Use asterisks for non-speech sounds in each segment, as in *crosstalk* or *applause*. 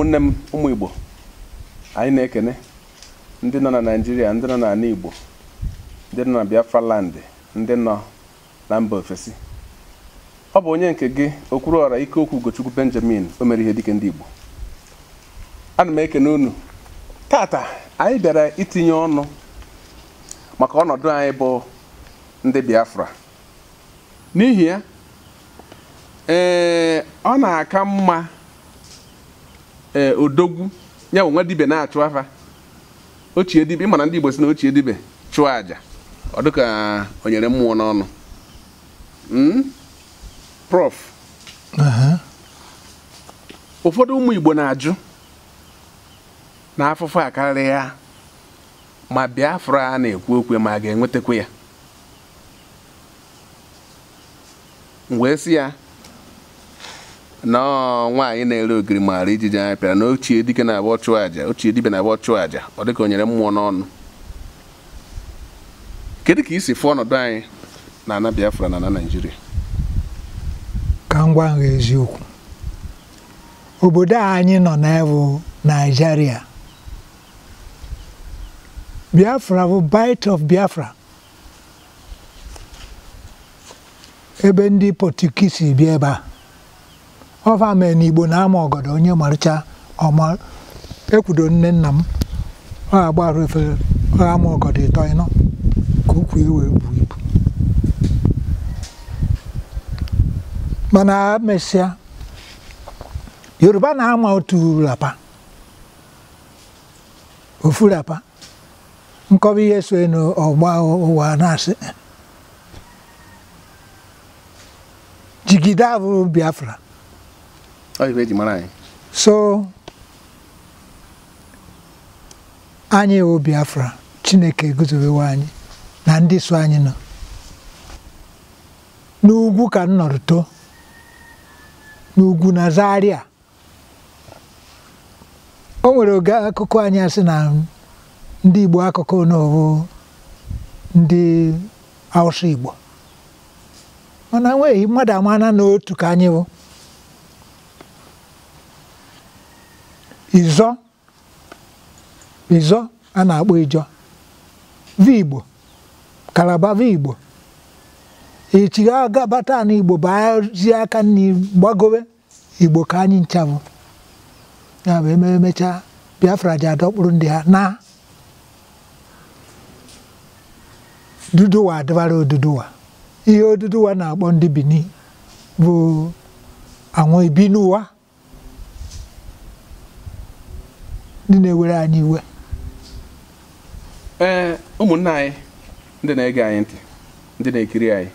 ụmụnne m ụmụ igbo anyị na-ekene ndị nọ na naijiria ndị nọ n'ala igbo ndị nọ na biafra landị ndị nọ na mba ofesi ọ bụ onye nke gị okwuru ọrụ ike okwu ugochukwu benjamin o mere ihe dike ndị igbo ana m ekene unu tata anyị bịara itinye ọnụ maka ọnọdụ anyị bụ ndị biafra n'ihi ya ee ọ na-aka mma ee eh, odogwu ya bụ nwa dibe na-achụ afa ochie dibe ịmara ndị igbo si na ochie dibe chụọ aja ọ dịka o nyere mmụọ n'ọnụ hmm? prof ụfọdụ ụmụ igbo na-ajụ na afụfụ a ya ma biafra a na-ekwu okwe ma a ga enwetekwe ya wee sị ya nwaanyị na-ere ogiri maara ijiji anya pịara na ochie dike na-abụ ọchụ aja ochie dibe na-abụ ọchụ aja ọ dịka onyere mmụọ n'ọnụ kedu ka isi fụ ọnọdụ anyị na ana Biafra na ana Naịjirịa ka ngwa gwa eziokwu obodo anyị nọ na n'ebụ Naijiria. Biafra bụ bite of Biafra ebe ndị Pọtukisi bịa ebe a ọva mee na igbo na-ama ọgọdọ onye marụcha ọma ekwudo nne nna m ọ agbarụ efere ama ọgọdọ ịtọ ịnọ ka ukwu iwe bu ibu mana mesịa yoruba na-ama otu rapa ofu rapa nkọwa ihe so n'ọgba ụwa na-asị jigide abụrụ biafra eji mara so anyị wụ Biafra Chineke eguzobewe anyị na ndị so anyị nọ n'ugwu ka m too n'ugwu na Zaria o nwere oge akụkọ anyị asị na ndị Igbo akụkụ n'obo ndị Hausa Igbo mana nweghị mmadụ amana n'otu ka anyị izo ịzọ a na-akpọ Ijọ. vigbo kalabava igbo echi Igbo. n'igbo bazi aka nri gbagowe igbo ka anyị nchabụ ya bụ biafra ji adọkpụrụ ndị ha na duduwa adịbara oduduwa ihe oduduwa na-akpọ ndị Benin bụ anwụ ibi n'ụwa ndị na-ewere anyị iwe ee ụmụnna anyị ndị na-ege anyị ntị ndị na-ekiri anyị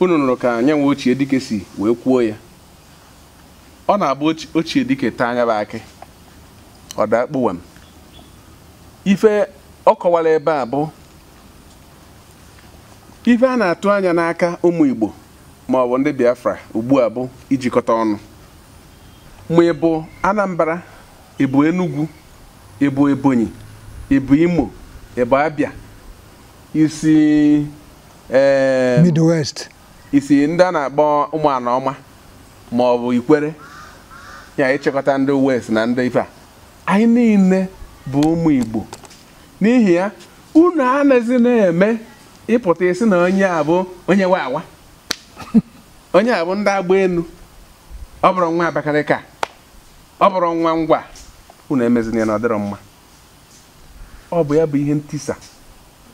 unu nụrụ ka anya nwe ochie dike si wee kwuo ya ọ na-abụ ochie dike taa anya bụ akị ọ daa m ife ọ kọwara ebe a bụ ife a na-atụ anya n'aka ụmụ Igbo ma ọ bụ ndị Biafra ugbu a bụ ijikọta ọnụ ma ị bụ Anambra ị bụ Enugwu ị bụ Ebonyi ị bụ Imo ị bụ Abia isi Midwest isi ndị a na-akpọ ụmụana ọma ma ọ bụ ikwere ya ịchịkọta ndị west na ndị ife a anyị niile bụ ụmụ Igbo n'ihi ya unu anaghịzi na-eme ịpụta isi na onye a bụ onye nwe awa *laughs* onye a bụ ndị agba enu ọ bụrụ nwa Abakaliki ọ bụrụ nwa ngwa unu emezina ya na ọdịrọ mma ọ bụ ya bụ ihe ntisa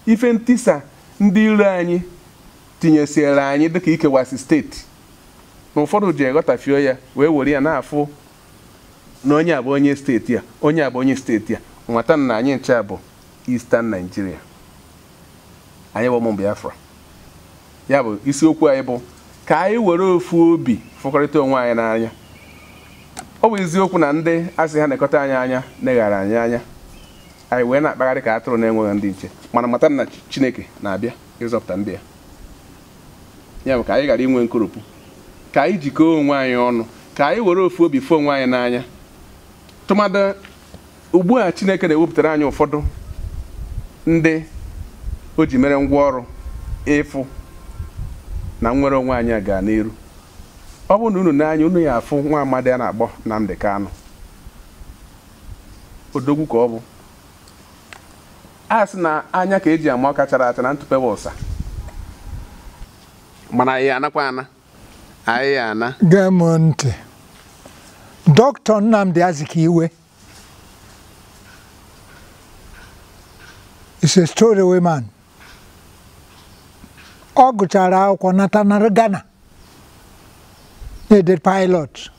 ife ntisa ndị iro anyị tinyesiere anyị dịka ikewasi steeti na ụfọdụ ji eghọtafio ya wee were ya na-afụ na onye abụ onye steeti a onye abụ onye steeti a nwata na anyị ncha bụ Eastern Nigeria anyị bụ ụmụ Biafra ya bụ isiokwu anyị bụ ka anyị were ofu obi fụkọrịta onwe anyị n'anya ọ bụ eziokwu na ndị asị ha na anyị anya na-eghara anyị anya anyị wee na-akpagharị ka atụrụ na-enweghị ndị nche mana mata na chineke na-abịa ịzọpụta ndị ya ya bụ ka anyị ghara inwe nkoropụ ka anyị jikọọ onwe anyị ọnụ ka anyị were ofu obi fu onwe anyị n'anya tụmadị ugbu a chineke na-ewepụtara anyị ụfọdụ ndị o ji mere ngwa ọrụ ịfụ na nnwere onwe anyị a gaa n'iru ọ bụrụ na unu n'anya unu ya afụ nwa amadi a na-akpọ Nnamdi Kanu odogwu ka ọ bụ a sị na anya ka eji ama ọka chara acha na ntụpewa ụsa mana anyị anakwa ana anyị ya ana gee m ntị dọkịta Nnamdi Azikiwe is a story ọ gụchara akwụkwọ nata na Ghana needed pilot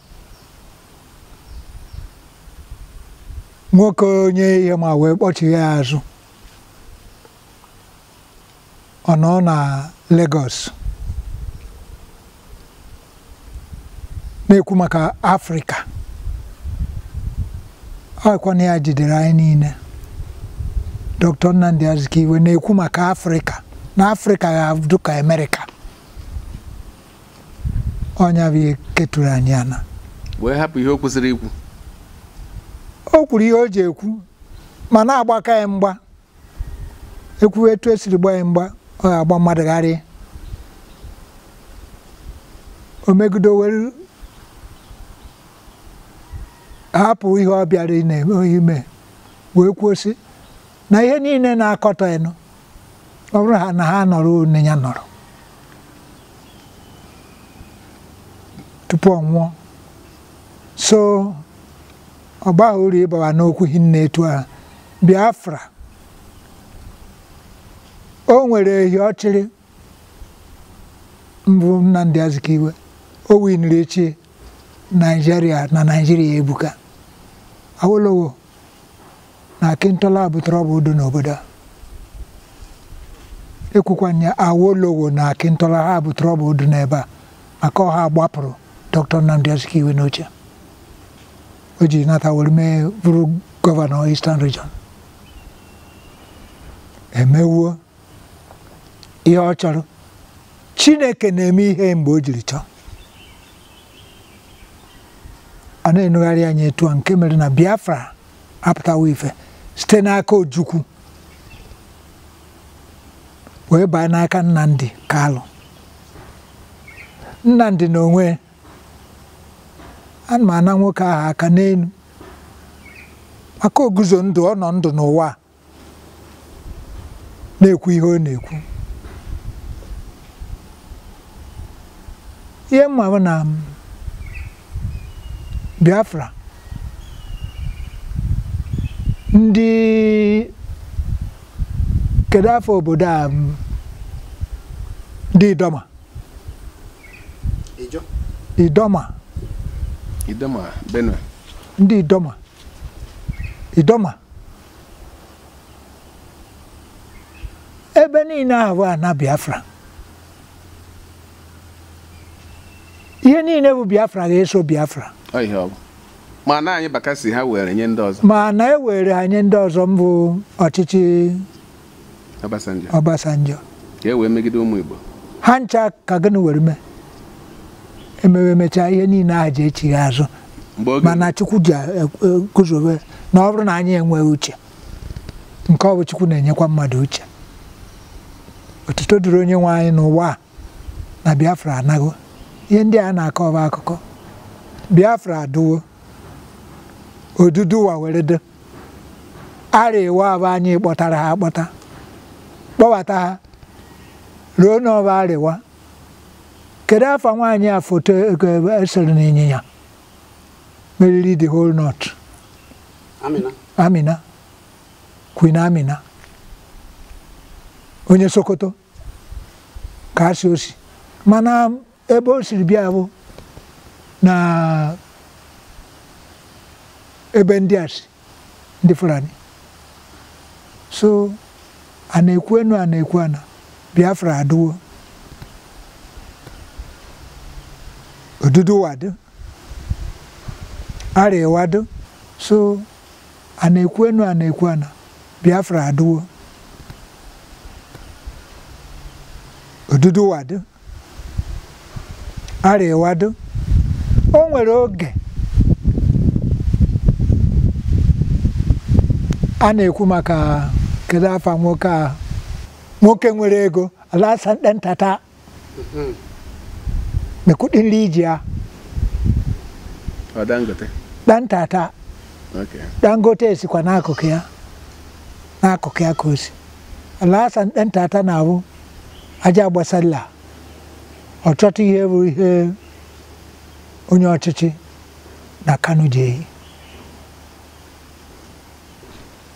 nwoke onye ihe ma wee kpọchigha ya azụ ọ nọ na Lagos na-ekwu maka Afrịka ọkwana ya jidere anyị niile Dr. Nnamdi Azikiwe na-ekwu maka Afrịka na Afrịka ga-abụ ka Amerịka ọnya bụ ihe keturu anyị ana wee hapụ ihe o ikwu o kwuru ihe o ji ekwu ma na-agbaka ya mgba ekwu etu esiri gba ya mgba ọ ga-agba mmadụ o megido were hapụ ihe ọ bịara ime wee kwuo si na ihe niile na akọta ịnụ ọ bụrụ na ha nọrọ onye ya nọrọ tupu ọ nwụọ so ọ gbaghị ịbawa n'okwu hinne etu a Biafra o nwere ehi ọchịrị mbụ Nnamdi Azikiwe o winiri echi naijiria na naijiria ebuka Awolowo na Akintola butere ọbụ udo n'obodo a Awolowo na Akintola ha butere ọbụ udo n'ebe a maka ọha gbapụrụ dr Nnamdi Azikiwe n'oche o ji nata were mee bụrụ gọvanọ Eastern Region emewuo ihe ọ chọrọ Chineke na-eme ihe mgbe o jiri chọọ a na-enugharị anya etu a nke mere na Biafra apụtawa ife site n'aka Ojukwu wee baa n'aka Nnamdi Kalụ Nnamdi na onwe ana m ana nwoke ahụ aka n'elu maka oguzo ndụ ọ nọ ndụ n'ụwa na-ekwu ihe ọ na-ekwu ihe mma bụ na um, Biafra ndị kedu afọ obodo a ndị um, Idoma Idoma Idoma Benue. Ndị Idoma. Idoma. Ebe niile ahụ na Biafra. Ihe niile bụ Biafra ga-eso Biafra. Ọ ihe Ma na anyị bakasị ha were nye ndị ọzọ. Ma na e were anyị ndị ọzọ mbụ ọchịchị Obasanjo. Obasanjo. Ka e wee megide ụmụ Igbo. Ha ncha ka gịnị were mee. emewemechaa ihe niile a ji echighị azụ mana chukwu ji e, guzobe e, na ọ bụrụ na anyị enweghị uche nke ọ bụ chukwu na-enyekwa mmadụ uche otuto dịrị onye nwe anyị n'ụwa a na biafra anago ihe ndị a na-akọ ọba akụkọ biafra adụwo odudu ụwa were do ara abụ anyị kpọtara ha akpọta kpọbata ha ruo n'ọba arịwa kedu afa nwaanyị a foto esere na ịnyịnya meriri the whole north amina queen amina onye sokoto ka asị osi mana ebe o siri bịa bụ na ebe ndị a si ndị fulani so a na-ekwu enu a na-ekwu ana biafra adịwo ọdụdụwa dị arịwa so a na-ekwu enu a na-ekwu ana biafra adịwo ọdụdụwa dị arịwa o nwere oge a na-ekwu maka kedu afa nwoke a nwoke nwere ego ala nke ntata da kudin rijiya dan tata dangote ya kwa n'akụkụ ya n'akụkụ ya ka o si dan tata na-abụ aja gbasalla ọtụtụ ihe bụ ihe onye ọchịchị na kano ji ehi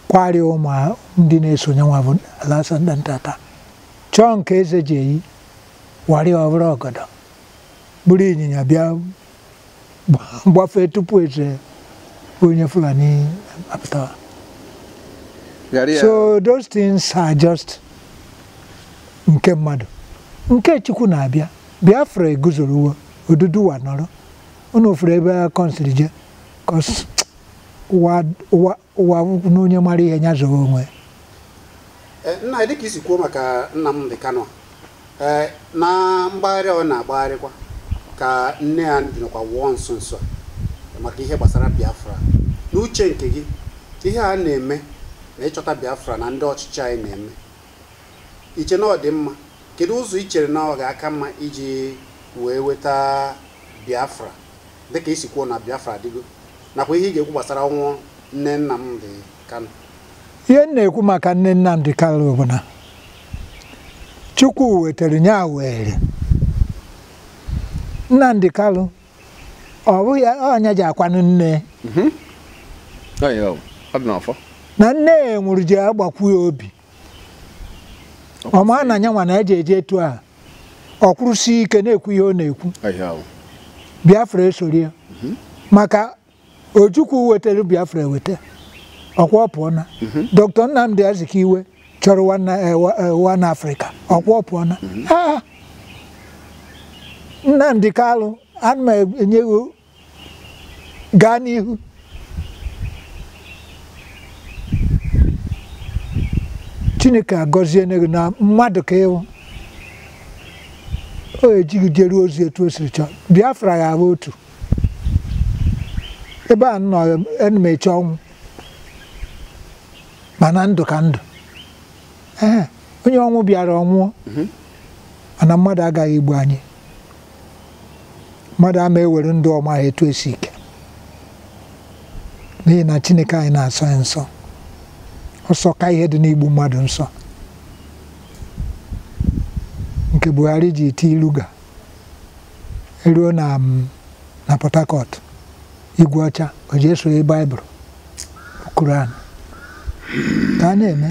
kwari ụmụ ndị na-esonye nwa bụ alasan dan tata chọọ nke eze ji ehi wari ọbụrụ ọgọdọ buru ịnyịnya bịa gbafee tupu eche onye Fulani apụtawa so those things are just nke mmadụ nke Chukwu na-abịa Biafra eguzorowo Oduduwa nọrọ unu ofere ebe a kọnsịrị je kọs ụwa n'onye mara ihe nya zọrọ onwe eh, nna e dịka isi kwuo maka Nnamdi Kanu eh, na mgbagharị ọ na-agbagharịkwa ka nne ya nọkwa wụọ nso nso maka ihe gbasara biafra n'uche nke gị ihe a na-eme na ịchọta biafra na ndị ọchịchị anyị na-eme iche na dị mma kedu ụzọ i chere na ọ ga-aka mma iji wee weta biafra dịka isi kwuo na biafra adịgo nakwa ihe ị ga-ekwu gbasara ọnwụ nne Nnamdi kano. ihe m na-ekwu maka nne Nnamdi Kano bụ na Chukwu wetara nya were Nnamdi Kalu ọ bụghị onye ji akwanụ nne mhm. na nne ya nwụrụ ji agbakwu ya obi ọ maa na anya nwa na eji eje etu a ọ kwụrụsi ike na-ekwu ihe ọ na-ekwu Biafra esori ya mhm. maka Ojukwu wetara Biafra eweta ọkwa pụọna mhm. Dr. Nnamdi Azikiwe chọrọ wan eh, Afrịka ọkwa pụọna Nnamdi Kalụ ana enyewo gaa n'ihu Chineke agọzie gị na mmadụ ka ịwụ o ejighị jeruo ozi etu o siri chọọ Biafra ya ahụ otu ebe a nọ ọnwụ mana ndụ ka ndụ ee onye ọnwụ bịara ọnwụọ mhm. mana mmadụ agaghị egbu anyị mmadụ ama ewere ndụ ọma ha etu esi ike n'ihi na Chineke anyị na-asọ ya nsọ ọsọ ka ihe dị n'igbu mmadụ nsọ nke Buhari ji ti ilu ga eruo na mm, na Port Harcourt igwe ọcha o ji esonye baịbụl Kuran ka a na-eme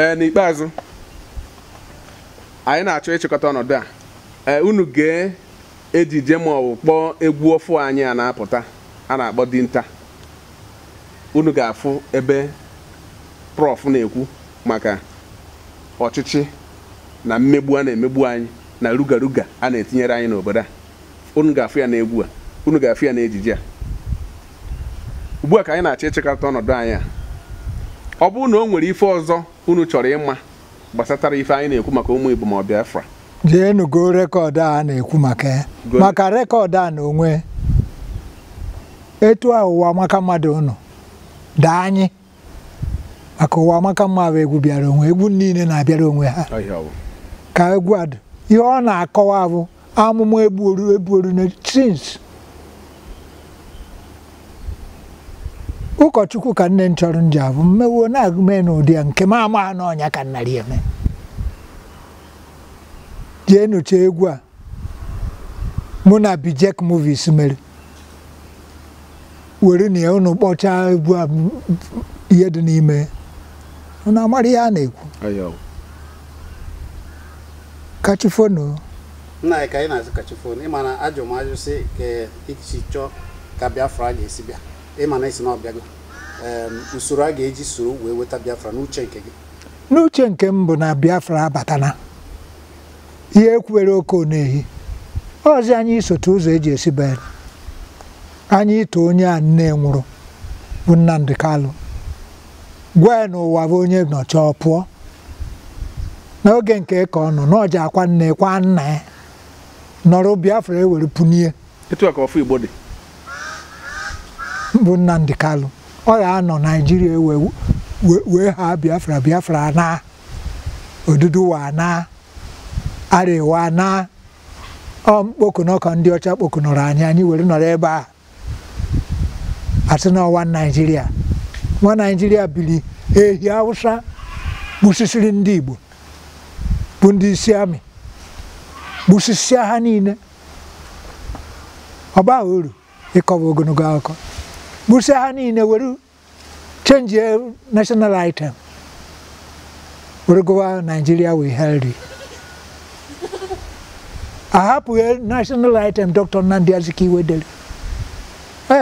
e, n'ikpeazụ anyị na-achọ ịchịkọta ọnọdụ a e, unu gee ejije ma ọ kpọọ egwu ọfụ anyị a na-apụta a na-akpọ dinta unu ga-afụ ebe prọf na-ekwu maka ọchịchị na mmegbu a na-emegbu anyị na rugaruga a na-etinyere anyị n'obodo a unu ga-afụ ya n'egwu a unu ga-afụ ya n'ejije a ugbu a ka anyị na-achọ ịchịkọta ọnọdụ anyị a ọ bụrụ na o nwere ife ọzọ unu chọrọ ịma gbasatara ife anyị na-ekwu maka ụmụ Igbo ma ọ jeenugo rekọdụ a na-ekwu maka maka rekọdụ a na onwe etu a ụwa maka mmadụ ụnụ daa anyị maka ụwa maka mmadụ egwu bịara onwe egwu niile na-abịara onwe ha ka egwu adụ ihe ọ na-akọwa bụ amụma egbuoru egbuoru na tins ụkọchukwu ka nne m chọrọ nji abụ mmewo na-agụme n'ụdị ya nke m ama n'ọnya ka nnara eme jee nụcha egwu a mụ na Bijek Movies mere were na ya unu kpọchaa egwu a ihe dị n'ime na amara ihe a na-ekwu kachifonu nna anyị ka anyị na-azụ kachifonu ịma na ajụ m ajụ si ka iji chọọ ka Biafra a ga-esi bịa ịma na isi na ọ usoro a ga-eji soro wee weta Biafra n'uche nke gị n'uche nke m bụ na Biafra abatana ihe ekwuwere oke na-ehi ọzi anyị isote ụzọ eji esi be anyị ito onye a nne nwụrụ bụ Nnamdi Kalụ gwa ya ụwa bụ onye nọcha ọ pụọ n'oge nke ka ọ nọ n'ọja akwa nne kwa nna ya nọrọ Biafra ewere punie bụ Nnamdi Kalụ ọ ga-anọ Naijiria e wee ha Biafra Biafra na odudu wa na arewa na ọmkpokunọkọ ndị ọcha kpokunọrọ anyị anyị were nọrọ ebe a asị na ọwa naijiria nwa naijiria biri ehi awụsa gbusisiri ndị igbo bụ ndị isi amị gbusisia ha niile ọ uru ịkọwa ogologo akụkọ gbusia ha niile were chenji national item were gụwa naijiria ahapụghị e national item Dr. Nnamdi Azikiwe dere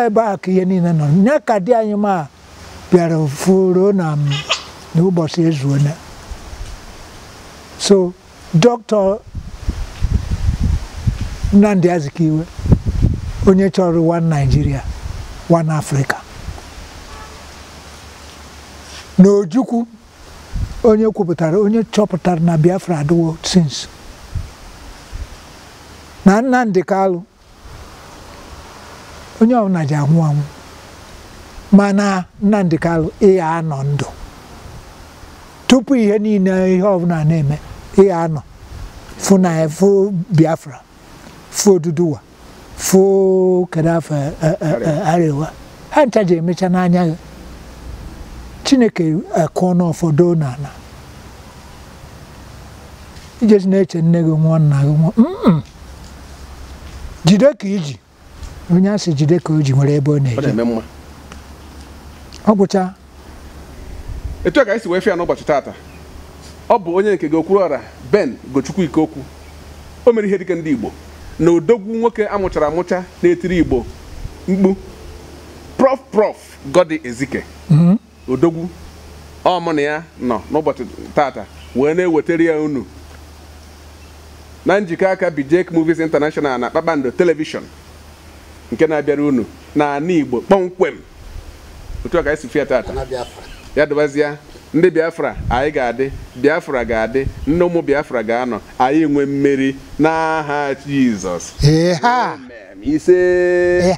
ebe a ka ihe niile nọ ya ka di anyị ma bịara furu na mm, n'ụbọchị ezuona so Dr. Nnamdi Azikiwe onye chọrọ one Nigeria one Africa na Ojukwu onye kwuputara onye chọpụtara na Biafra adịwo since na Nnamdi alụ onye ọbụla ji anwụ anwụ mana Nnamdi Kalụ ịgha anọ ndụ tupu ihe niile ihe ọbụla na-eme ịgha anọ fụ na fụ Biafra fụ Oduduwa fụ kedu afọ e, e, e, ha ncha ji emecha n'anya gị Chineke akụọ n'ụfọdụ n'ala ijesi na-eche nne gị nwụọ nna gị nwụọ jide ka iji onye asị jide ka o nwere ebe ọ na-eje ọ gwụcha etu a ka esi wee fịa n'ụbọchị taata ọ bụ onye nke gị okwuru ọra ben gochukwu ikokwu o mere ihe dịka ndị igbo na odogwu nwoke amụchara amụcha na-etiri igbo mkpu Prof Prof godi ezike mhm. odogwu ọmụ na ya nọ n'ụbọchị taata wee na-ewetara ya unu na njikọ aka bijek Movies International na Kpakpando televishọn nke na-abịara unu na ana Igbo kpọmkwem otu ọ ka esi fia tata ya dụbazịa ndị Biafra anyị ga-adị Biafra ga-adị nne ụmụ Biafra ga-anọ anyị nwe mmeri n'aha Jizọs ise